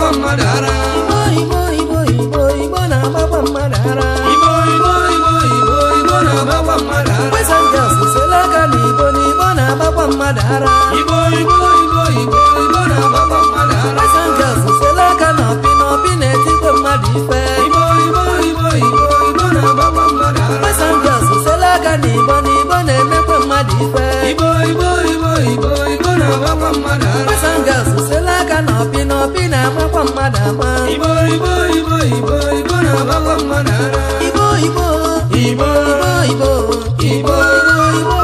na ibo ibo ibo ibo na-agbakwa mmadụ ara igbo igbo igbo na mmadụ ara aka na ọpị na na mmadụ ife n'ibo na aka na na opi na-amakwa mmadụ ama igbo igbo igbo igbo igbo na-amakwa mmadụ ara igbo igbo igbo igbo igbo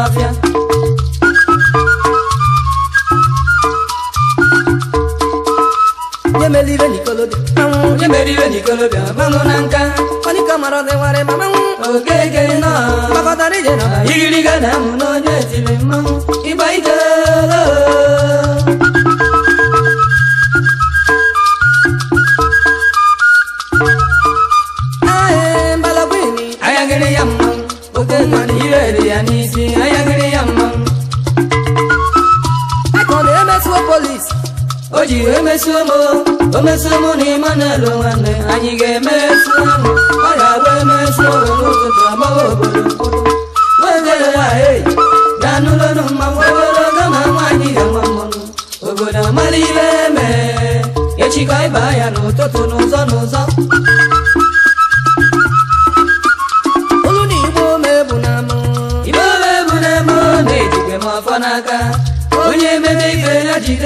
Philadelphia. Nye meribe n'ikolobịa, na nka. Onye mara ọdị ma mmanwụ. Okeke nọ. na-amụ nọ. polis o ji emesuo E omesuo m na Emmanuel nwanne anyị ga-emesu ọ ga-abụ emesu n'ụtụtụ agbawa obodo nwedere nwanyị na n'ụlọnụ mmanwụ ogologo ma nwaanyị ga-ama mmanwụ obodo amara ibe mee echikọ ịba ya n'ụtụtụ n'ụzọ n'ụzọ olu na igbo omebunam igbo omebunam na-ejike m afọ n'aka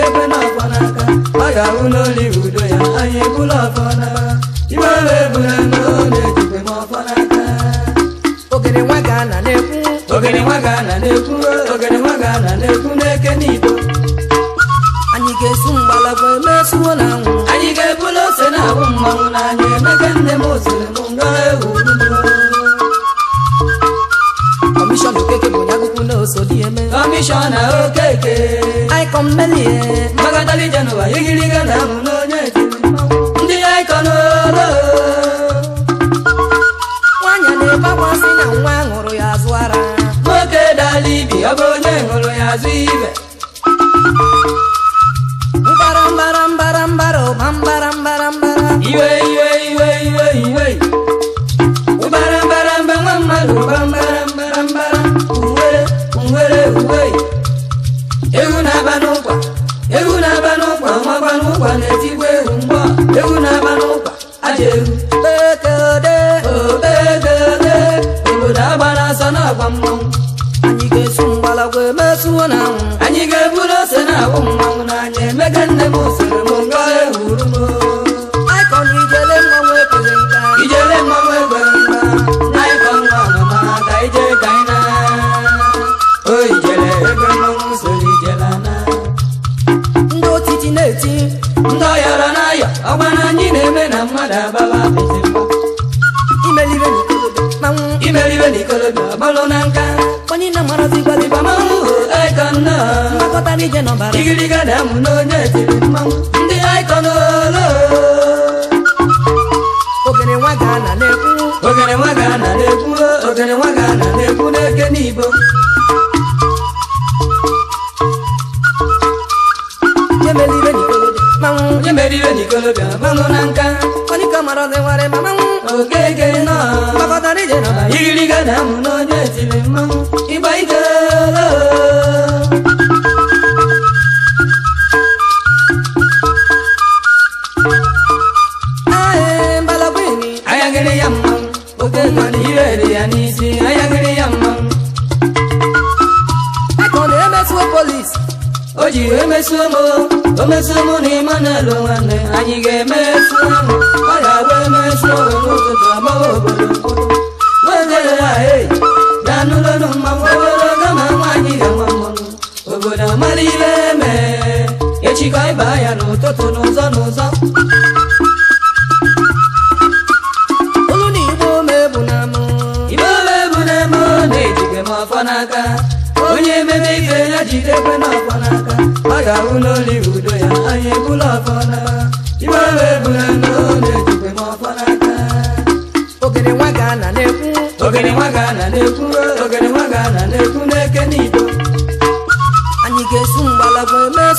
ebe na-akwa n'aka ọ ga-ahụ n'oli udo ya anyị bụla ọfọ n'aka ibe ahụ ebula n'olu ejikwe m ọfọ n'aka ogene nwa ga-ana na-ekwu ogene nwa ga-ana na-ekwu ogene nwa ga-ana na-ekwu n'eke n'ibo anyị ga-esu mgbala bụ emesuo na anwụ anyị ga-ebula ose na ahụ mmanwụ na anyị emeke nne m ozere m Kọmishọna Okeke Aikọn Melie Magadali Jenụwa igiriga na abụ n'onye etiri ndị Aikọn olo Nwanyị na-ebakwasị na nwa ṅụrụ ya azụ ara Nwoke dala ibi ọ bụ onye ṅụrụ ya azụ ibe mbara mbara mbara mbara ụba mbara mbara mbara iwe iwe iwe iwe iwe gị je n'ọbara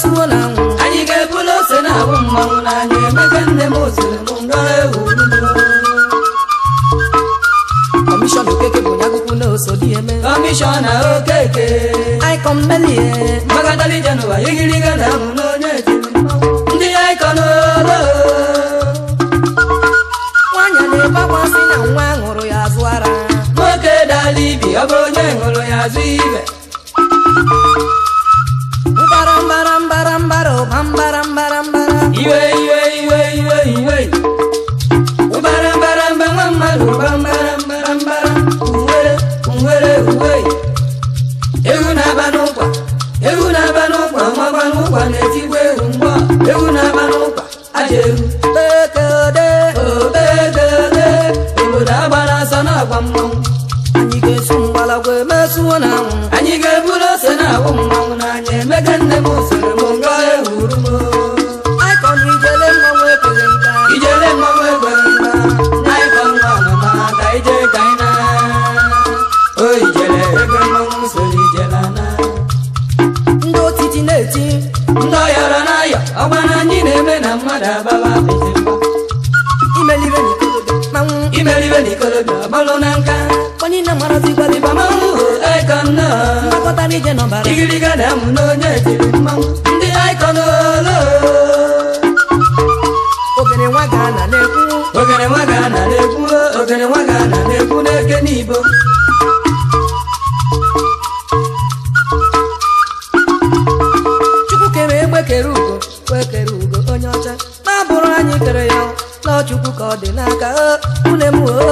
suola anwụ anyị ga-ebulu ose na-abụ mmanwụ n'anya emeka nne m oziri m nga ewu kọmishọn okeke bụ onye akwụkwọ na oso eme kọmishọn okeke aikọmmelie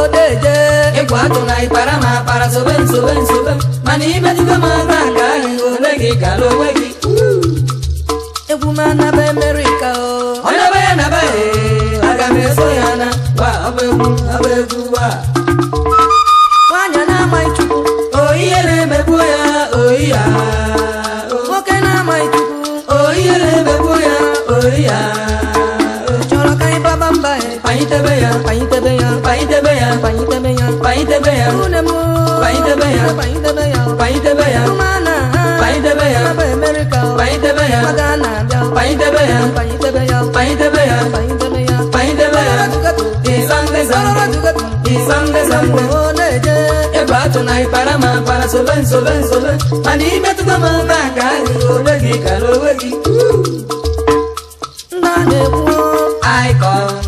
odeje ịgwa na ịkpara ma akpara sobe nsobe nsobe mana imejugo m aka ka onwe ole gị kara onwe gị egwu m anaba emerika o ọ naba ya naba ya aga m eso ya na gba ọba egwu ọba egwu gbaa ya payin tebe ya payin tebe ya unemo payin tebe ya payin tebe ya payin tebe ya mana payin tebe ya america payin tebe ya magana payin tebe ya payin tebe ya payin tebe ya payin tebe ya payin tebe ya izange zange izange zange oneje ebatu na ipara ma para solen solen solen ani metuta ma na ka ni olegi ka olegi na ne wo icon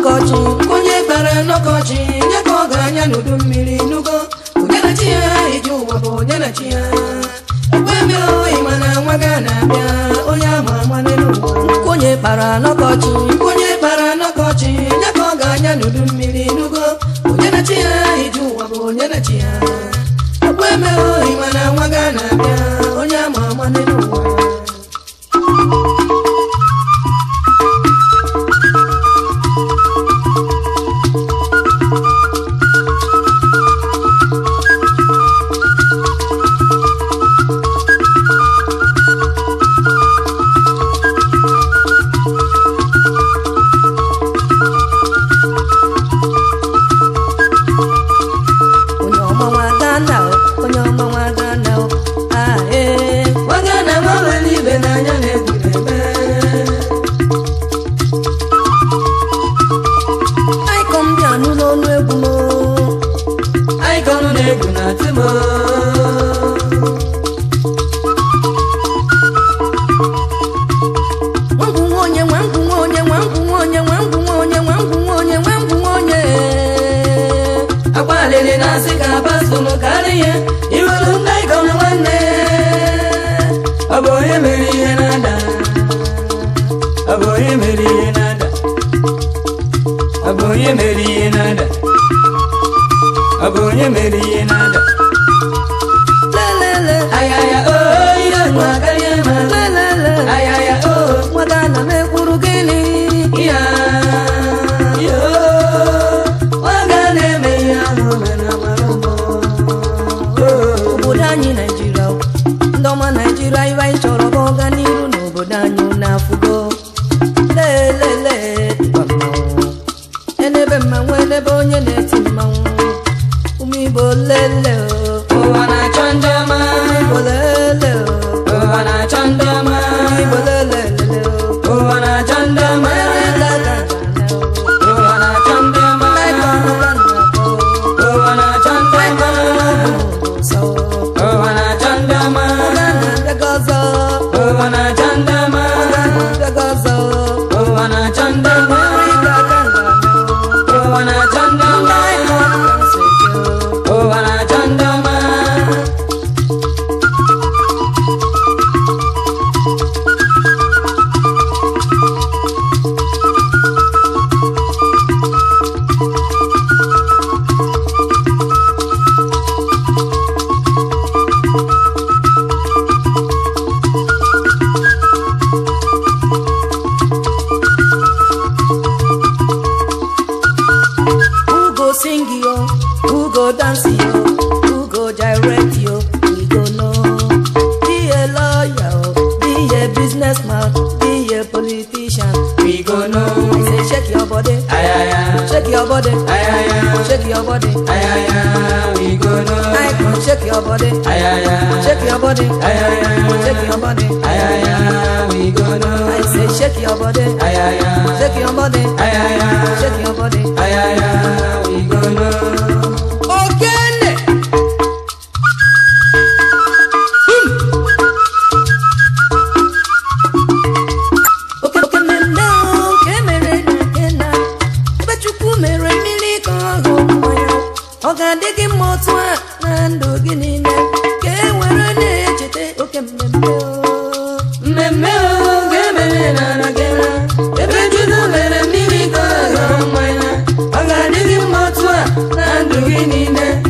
n'ọkọchị onye kpere n'ọkọchị nye ka ọgaranya n'udu mmiri n'ugo ya abịa onye kpara n'ọkọchị onye kpara n'ọkọchị nye ka ga-anya n'udu mmiri n'ugo onye ya iji ụwa bụ onye ya nine.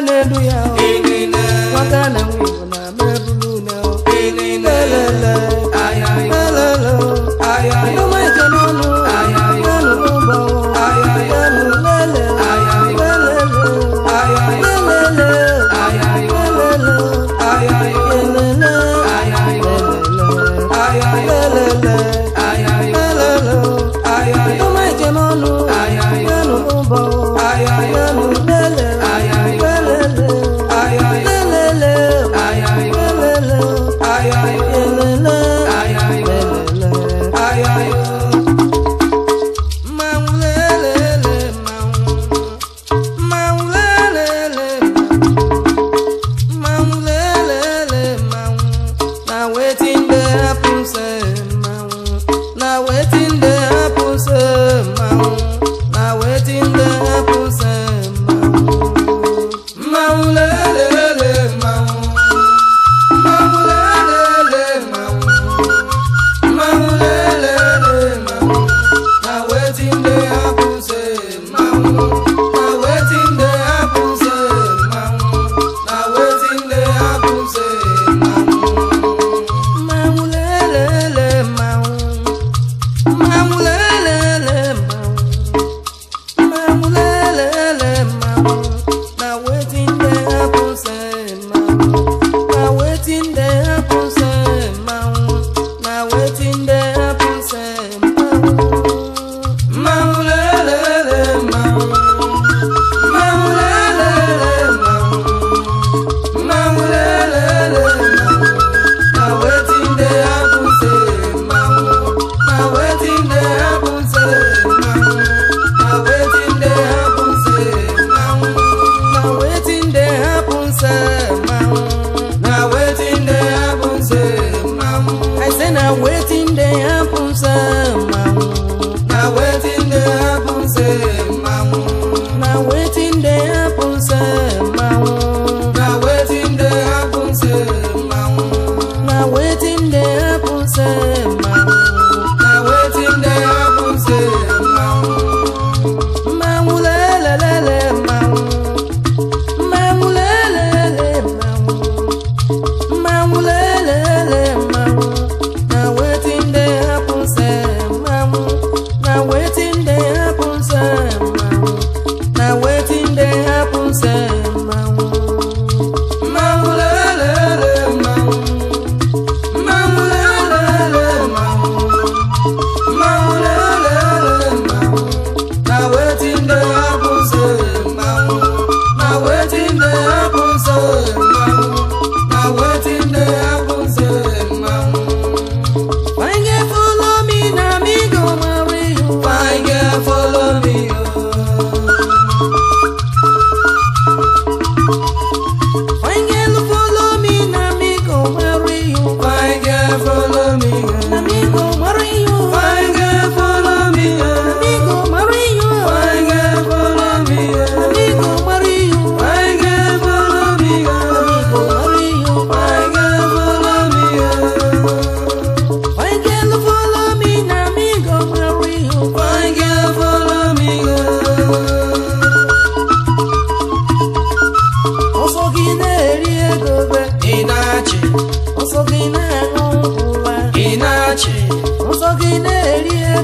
Aleluia.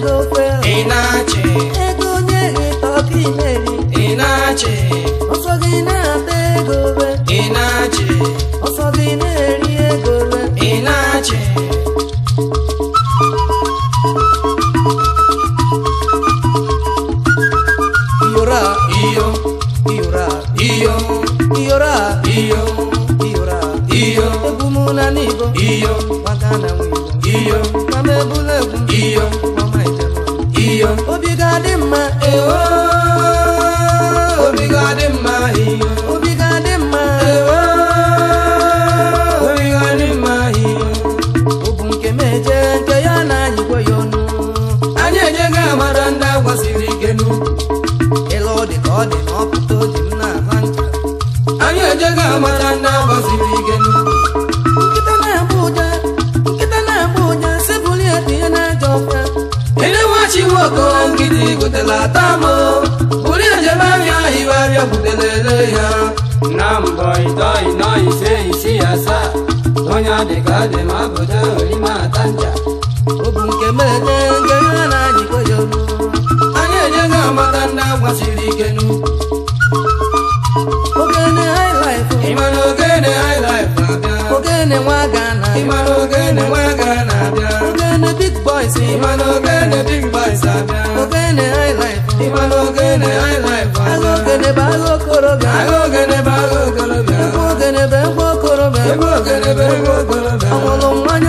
Ị na achị ego onye gheta ọka Ị na achị ọsọ gị na-ata ego Ị na achị ọsọ gị na-eri ego Ị na achị iyora a! iyo iyora iyo iyora iyo iyora iyo egwu m na n'ibo iyo maka na iyo ma m egwu iyo nwaanyị ka dị ma ọ bụdo orima ata ncha ọ bụ nke mede nke ha na-anyị koyo amata ndị ike nu ogene na-abịa ogene nwa na nwa abịa ogene abịa ogene agha ogene bụ agha okorobịa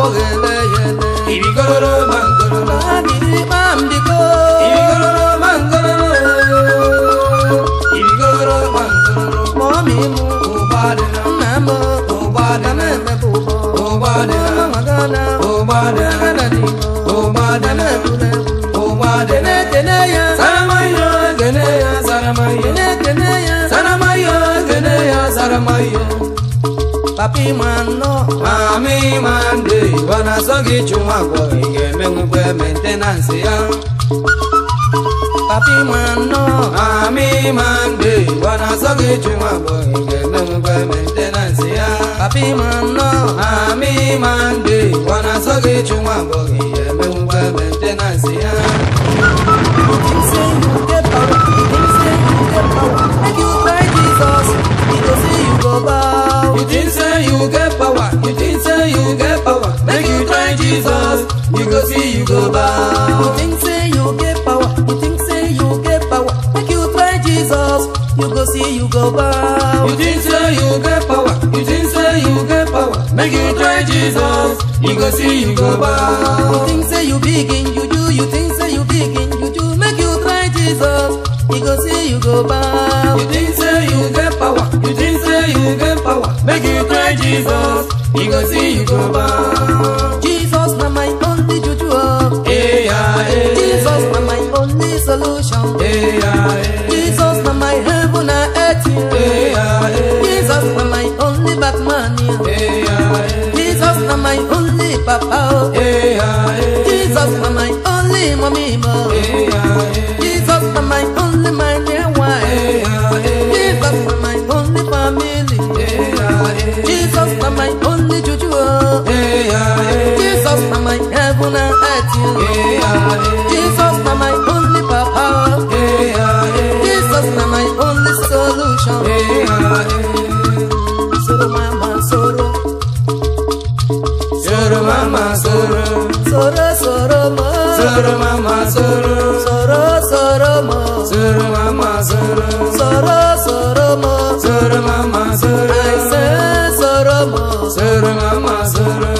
abogele yele ibikororo mangororo abiri mambiko ibikororo mangororo ibikororo mangororo momi mu obadela mamo obadela mamo obadela magana obadela nani obadela tule obadela teneya saramayo teneya saramayo teneya saramayo teneya saramayo papi mando mami mande wanasogi chuma kwa ngeme ngwe maintenance ya papi mando mami mande wanasogi chuma kwa ngeme ngwe maintenance ya papi mando mami mande wanasogi chuma kwa ngeme ngwe maintenance ya Make you Jesus, you go see, you go bow. You think say you get power, you think say you get power. Make you try Jesus, you go see, you go bow. You think say you get power, you think say you get power. Make you try Jesus, you go see, you go bow. You think say you begin, you do, you think say you begin, you do. Make you try Jesus, you go see, you go bow. You think say you get power, you think say you get power. Make you try Jesus, you go see, you go bow. Jesus. my only juju. Hey, oh. Jesus na my only solution. Hey, Jesus na my heaven and earth. Hey, Jesus na my only Batman. Hey, Jesus na my only papa. Hey, Jesus na my only mommy. hey. Jesus na my only heaven and earth, you. Yeah, yeah. Jesus, na my only power. Yeah, yeah. Jesus, na my only solution. Yeah, yeah. Soro mama, soro. Soro mama, soro. Soro, soro ma. Soro mama, soro. Soro, soro ma. Soro mama, soro. Soro, soro ma. Soro mama, soro. I say soro ma. Soro mama, soro.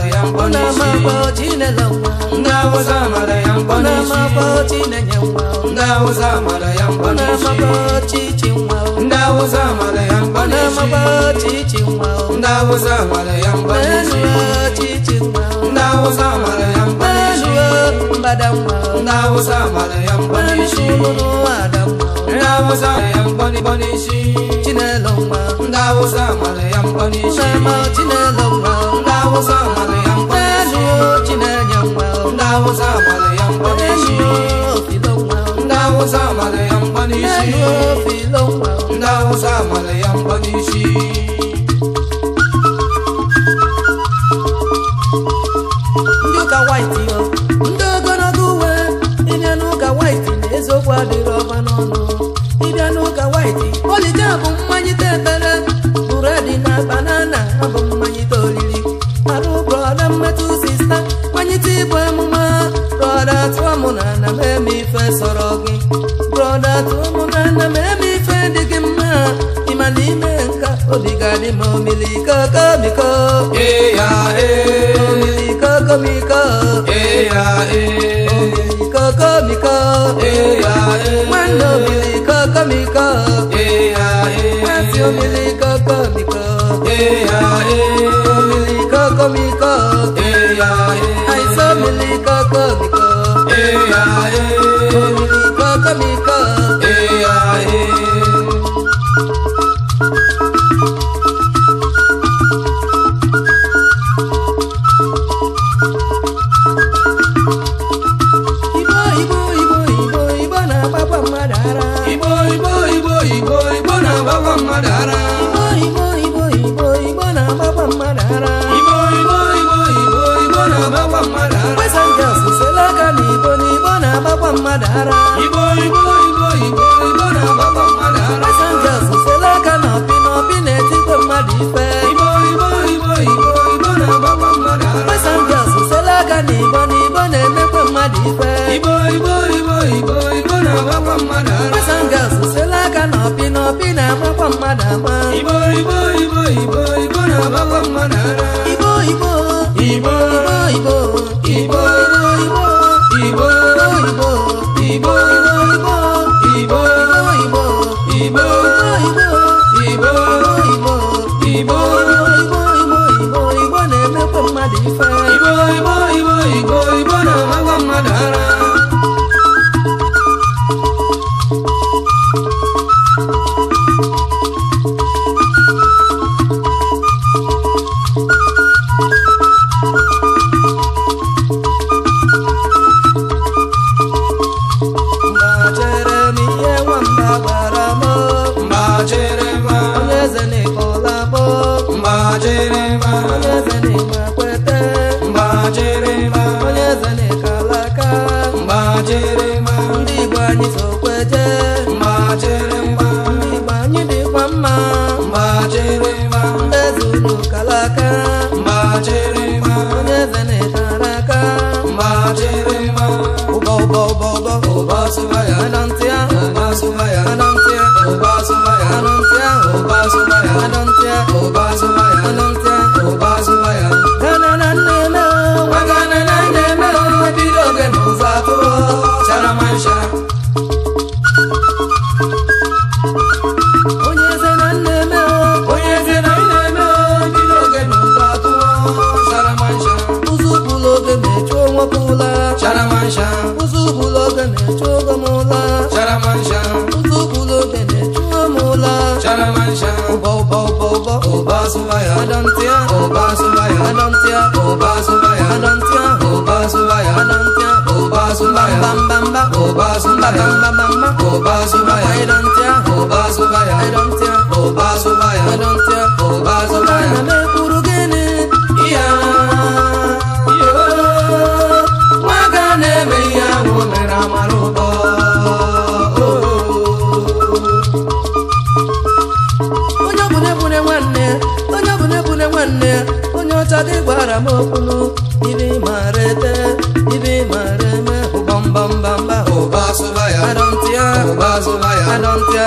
yambo na mapo jina lawa ngawo za mara yambo na mapo jina nyambo ngawo za mara yambo na mapo chichinwa ngawo za mara yambo na mapo chichinwa ngawo za mara yambo na chichinwa ngawo za mara yambo na badamwa ngawo za mara yambo na shumuno adamwa ngawo za yambo ndị ahụ mara ya ya n'isi na mee m ife sọrọ gị brọda tụmụnana mee m ife dị gị mma ịma na ime nka obi ga-adị m omiliko komiko eh, eh. omiliko komiko eh, omiliko komiko nwanne omiliko komiko nwasị omiliko komiko omiliko komiko àìsàn omiliko komiko. Hey, yeah, hey. Kolika, kolika. Hey, yeah, mmadụ ara igbo igbo na agbakwa mmadụ ara pasenjas sela aka na ọpị na na mmadụ ife igbo igbo igbo igbo na agbakwa mmadụ ara pasenjas aka na igbo na igbo na mmadụ ife igbo igbo igbo igbo na-agbakwa mmadụ ara aka na mmadụ ama igbo igbo igbo igbo na-agbakwa mmadụ igbo igbo igbo igbo igbo igbo boy. Oba Obazuba, Obazuba, Obazuba, Obazuba, Obazuba,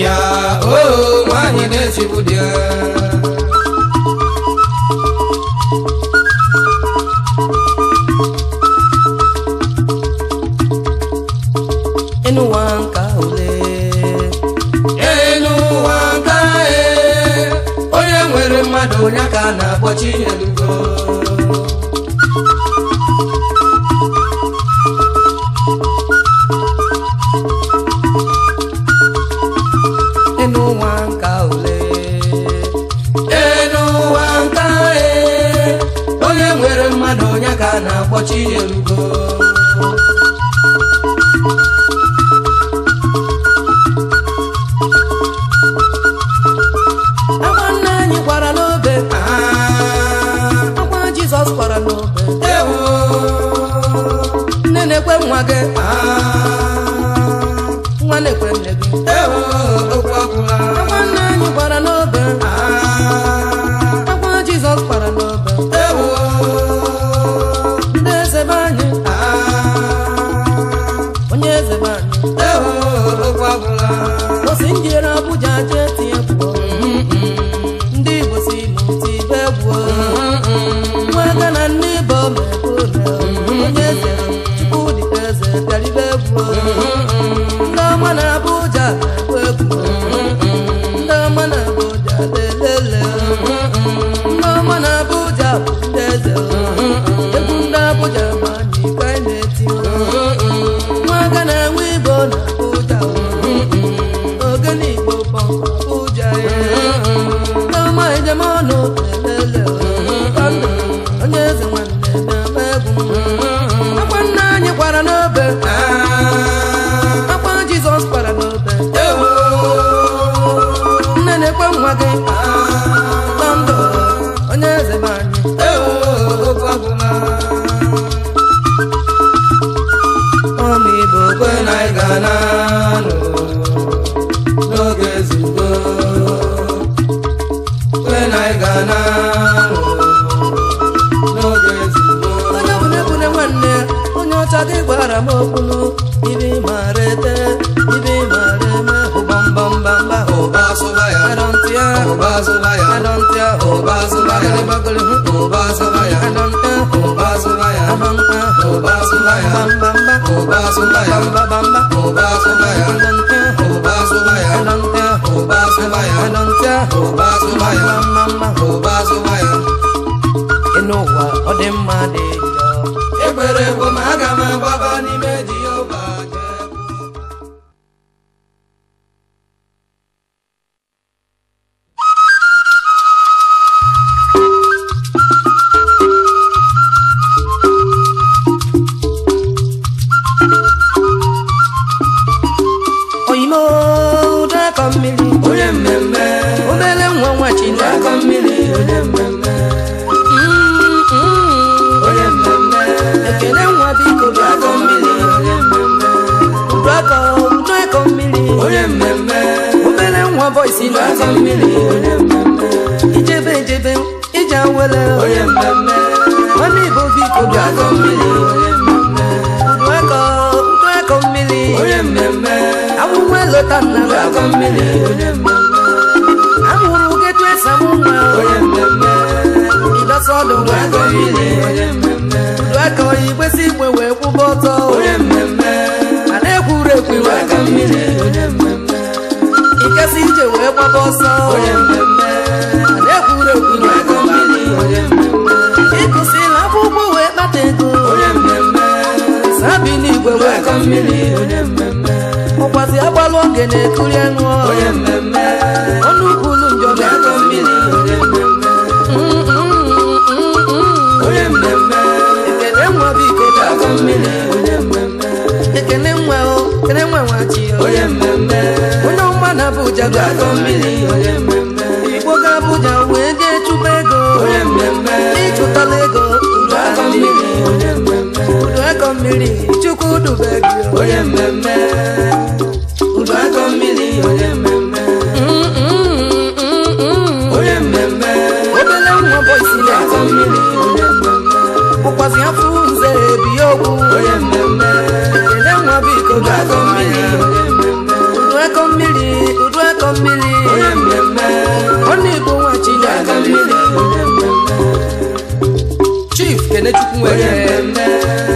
ya o oh, mani ne sibudia. Enu wanka ole. Enu wanka e. Onye nwere mmadụ onye aka na-akpọchi elu. afọ nze ebi okwu onye mmemme ele nwa biko ga-akọ mmiri udu eko mmiri udu mmiri onye mmemme ọ na-egbu nwa chi ga-akọ mmiri chief kenechukwu nwere mmemme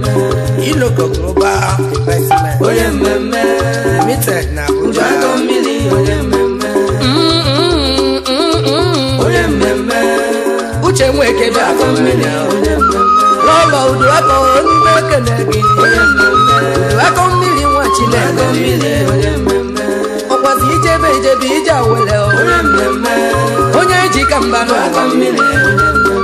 Iloko Global Investment. Onye mmemme. Limited na Abuja. Njago mmiri onye mmemme. Onye mmemme. Uche Nweke bịa afọ mmiri onye mmemme. Lọlọ udu aka onye na-ekele gị. Onye mmemme. Udu aka mmiri nwa Chineke. Mmiri onye mmemme. Ọkwazi ijebe ijebe ije awele. Onye mmemme. Onye eji ka mba n'aka mmiri onye mmemme.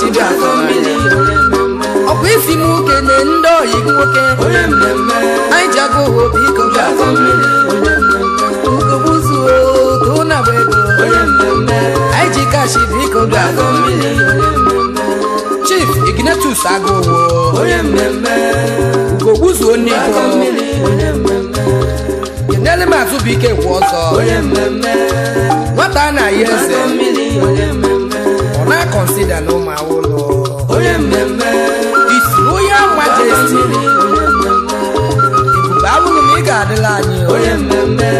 chibafamili ọkwa isi m nwoke na ndị oyi nwoke anyị ji agụ ụwa obi iko uzuo ka ụna bụ ego anyị ji kashi biko chief ignatus agụwo ugogbuzuo n'iko kenele m azụbụike kwa ọzọ nwata a na-ayi eze na kọnsida na ụmụ awụlọ onye mmemme isiri onye majesti ebube abụghị na ị ga-adịla anyị onye mmemme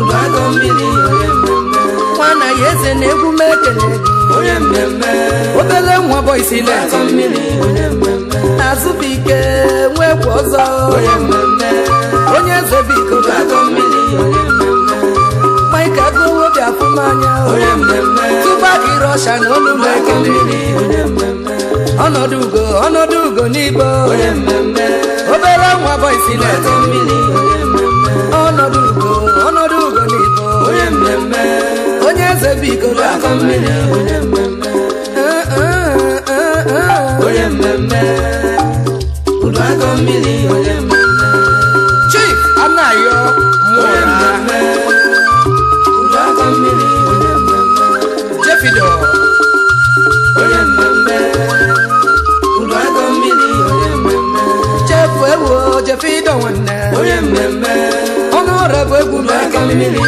ụlọagọ mmiri nwa na ya eze na egwu m ekele onye mmemme obele nwa bọisi leti azụ bụ ike nwa egwu ọzọ onye eze bụ iko ka agụwobi afụm anya tụba gị rọsha na olu m ekele ọnọdụ ugo ọnọdụ ugo n'igbo obere nwa bọisi na-ete mmiri ọnọdụ ugo ọnọdụ ugo n'igbo onye eze bụ igolo afọ mmiri onye mmemme eh, eh, eh, udu akọ mmiri onye mmemme efe ịdọ nwanne ọrụ bụ egwu maka mmiri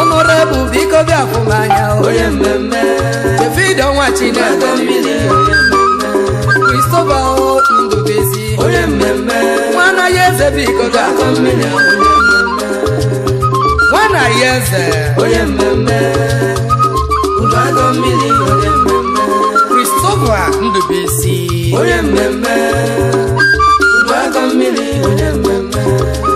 ọnụọra bụ biko bịa fụ anya efe ịdọ nwa chineke kristoba ndobezi nwa anaghị eze biko bịa fụ mmiri nwa anaghị eze kristoba ndobezi onye mmemme family, oh, yeah,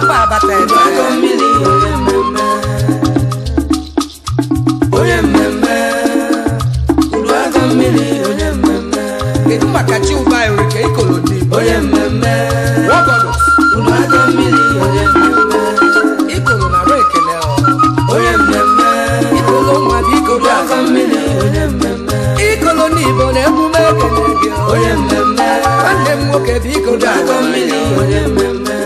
papa bàtà ẹ̀dọ́ ẹ̀kọ́ mílì onye mmemme onye mmemme udu aka mmiri onye mmemme kedu maka chi ụba erike ikolodi onye mmemme wọgọdọ udu aka mmiri onye mmemme ikolo na rụ ekele onye mmemme ikolo nwa bụ ikolo aka mmiri onye mmemme ikolo n'igbo na emume ekele gị onye mmemme nwanne m nwoke bụ ikolo aka mmiri onye mmemme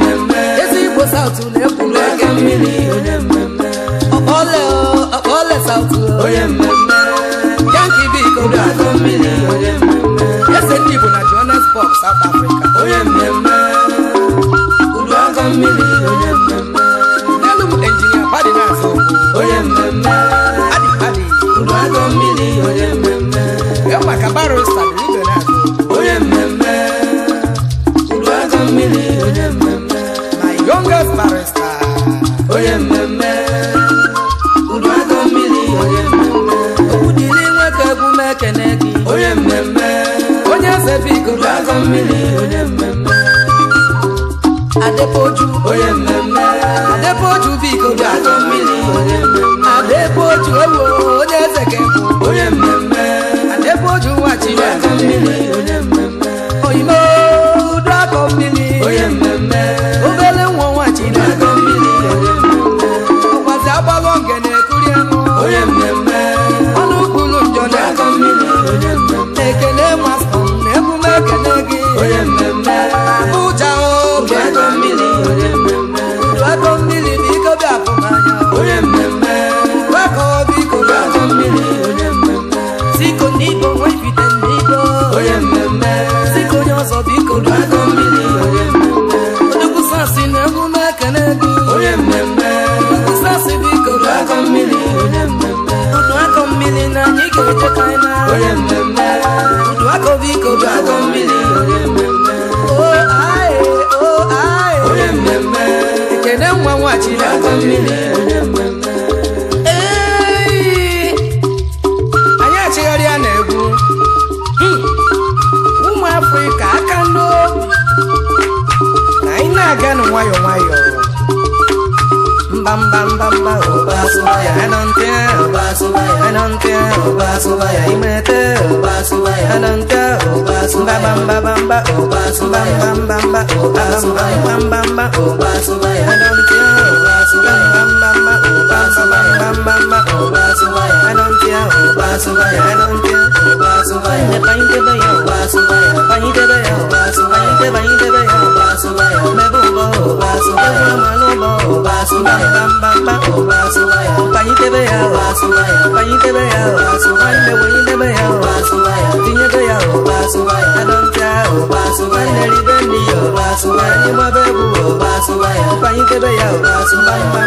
ole South onye mmiri onye mmemme na Johannesburg South Africa onye mmemme mmiri onye mmemme n'elu m injinia mmemme mmiri onye mmemme my youngest mmemme Papa mmiri onye mmemme Adepoju onye mmemme Adepoju biko mmiri onye mmemme Adepoju owo onye ezeke onye mmemme Adepoju wachiri aka mmiri onye mmemme biko biko bịakọ mmiri mmemme ekene nwa nwachi mmiri mmemme anyị achịgharị ya na-egwu ụmụ aka ndo na anyị na-aga nwayọọ mba mba mba mba na subaya adelante oba subaya imete oba subaya adelante oba subaya bamba bamba oba subaya bamba bamba oba subaya bamba bamba oba subaya adelante oba subaya bamba bamba oba subaya bamba bamba oba subaya adelante oba subaya adelante bye.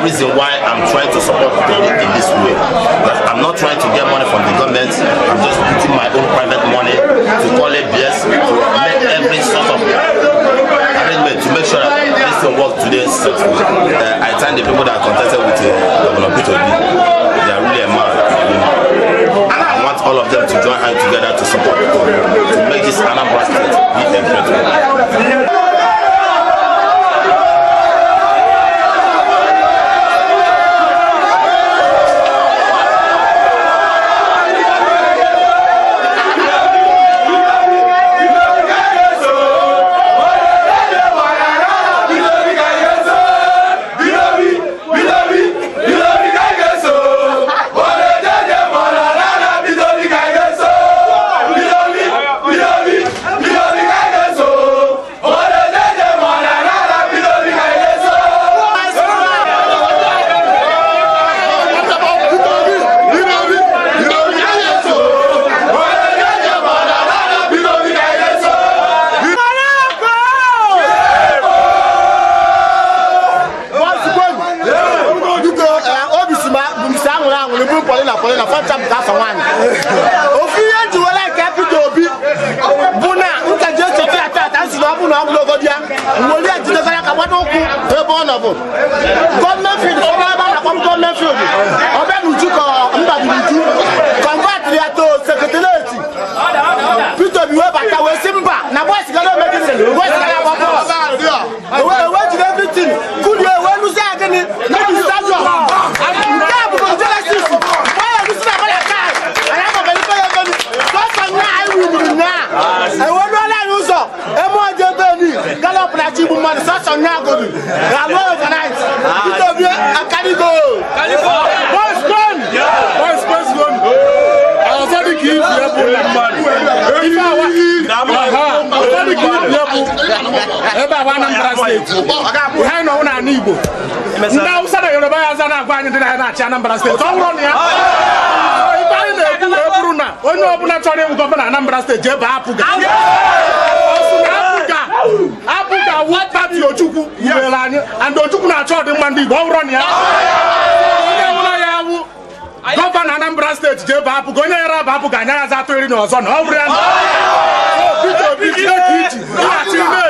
that reason why I'm trying to support them in this way. That I'm not trying to get money from the government. I'm just putting my own private money to call it BS to make every sort of arrangement to make sure that this thing works today successfully. Uh, I thank the people that are contested with uh, Governor Peter B. They are really a man. And I want all of them to join hands together to support to, to make this Anambra state be a Kobe. They are not organized. Itobi and Kaligo. Kaligo. Boys gone. Boys boys gone. I was only kidding for your boy man. If I want, I was only kidding for your boy. Ebe awa Anambra State. Behind na una ni Igbo. Ndị Hausa na Yoruba ya aza na-agwa anyị ndị na ya na-achị Anambra State. Ọ nwụrụ na ya. Ife anyị na-ekwu wee bụrụ na onye ọbụla chọrọ ịwụ gọvanọ Anambra Steeti jee baa apụ ga. Ọ sị na apụ ga. pati Ojukwu were anyị and Ojukwu na-achọ ọdịmma ndị Igbo ọ na ya onye nwụrụ ya awụ gọvanọ Anambra steeti ji ebe apụgo onye yara abụ ga-anya ya atụ iri na ọzọ na ọ bụrụ ya na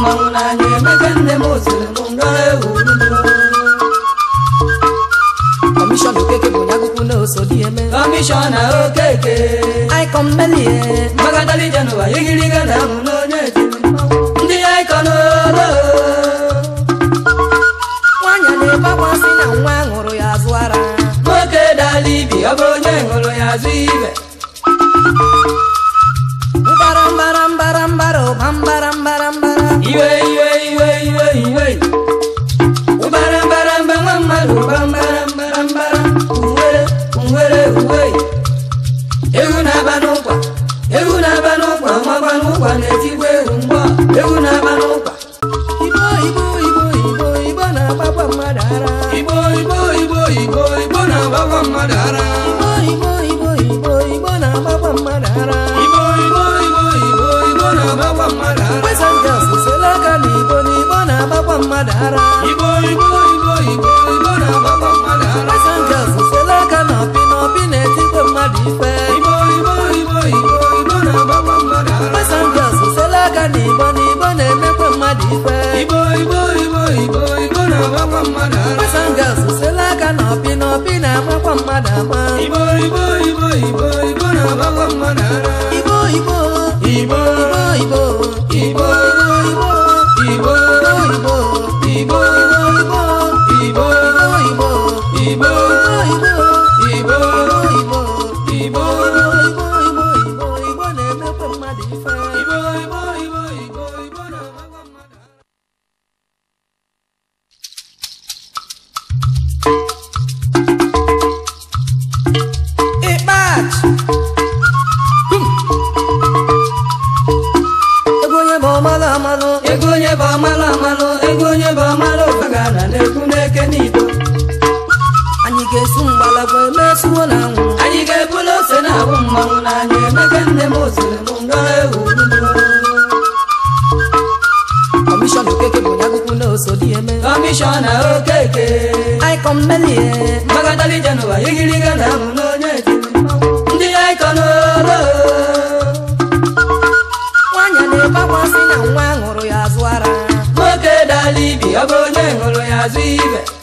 mmanwụ n'anya emebe nne m osiri m nọ ewu kọmishọn okeke bụ onye akwụkwọ na oso dị eme kọmishọn okeke aikọn melie mbagadali jenụwa igiriga na ahụ n'onye etiri ndị aikọn n'oro. nwaanyị na-ebekwasị na nwa ṅụrụ ya azụ ara nwoke dala ibi ọ bụ onye ṅụrụ ya azụ ibe mbara mbara mbara mbara ụba mbara na-amakwa mmadụ ara Passengers sela aka up ọpị na ọpị na-amakwa mmadụ ama Igbo Igbo Igbo na-amakwa mmadụ ara Igbo Igbo Igbo Igbo Igbo emege okeke bụ na osodi eme na okeke ahụ n'onye ndị na na nwa ṅụrụ ya azụ ara nwoke dala ibi ọ bụ onye ṅụrụ ya azụ ibe